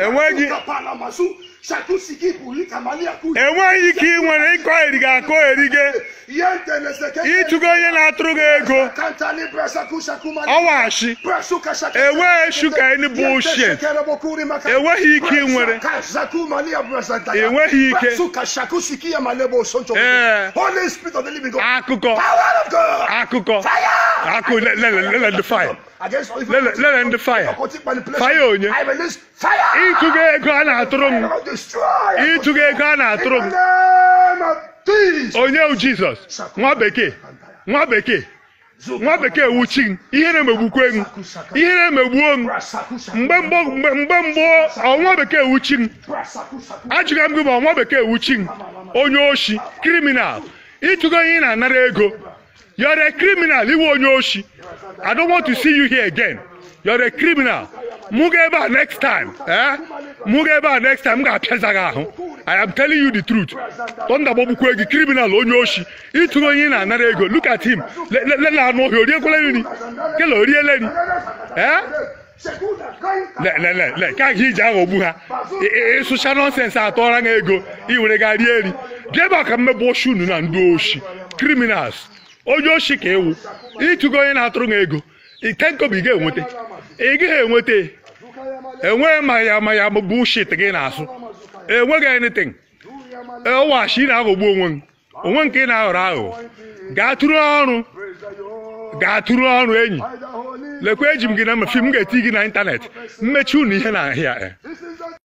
enweghị ka ị nwere ịkọ eriga akọ erige ịtụgo onye na-atụrụ gị ego ọwashi enweghị shuka enugbu ochie enweghị ike ị nwere enweghị ike ee akụkọ akụkọ Aku le le le let the fire. le all let let the fire. Fire onye. I ego a na-atụrụ m. Ịtụga ego a na-atụrụ m. Onye wu Jizọs nwa bekee nwa bekee nwa bekee wuchi m ihere megbukwe m ihere megbuo m mgbe mgbe mgbe mbụ ọnwa bekee wuchi m ajụga m gị ma ọnwa bekee wuchi m onye oshi kriminal ịtụgo ihe ị na-anara ego You're a criminal. Iwe onye oshi. I don't want to see you here again. You're a criminal. Mụ ga ebe a next time. Eh? Mụ ga ebe a next time m ga-apịaza gị ahụ. I am telling you the truth. Tọndagbagbukwe gị criminal onye oshi. Ịtụrụ onye na-anara ego. Look at him. Lela anụ ọhịa oriekwele nri. Kele oriele nri. Eh? lelelele ka gị iji aghọgbu ha ịsụcha nọnsensị atọra ha ego iwere ga rie eri jebe ka mmebe oshi unu na ndị oshi criminals onye oshi ka ewu ịchụgo onye na-atụrụ m ego ike nkobi ị ga-enweta ị gaghị enweta enweghị ma ya ma ya bụ shit gị na-asụ enweghị anything ewashi na-aghọgbu onwe m onwe nke ị na-aghọrọ aghụghọ gaatụrụ ọrụ ọrụ enyi lekwa eji m gị na mmefi m ga-eti gị na ịntanetị mmechi unu ihe na ahịa